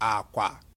akwa